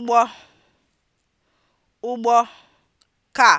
ụgbọ ụgbọ kaa.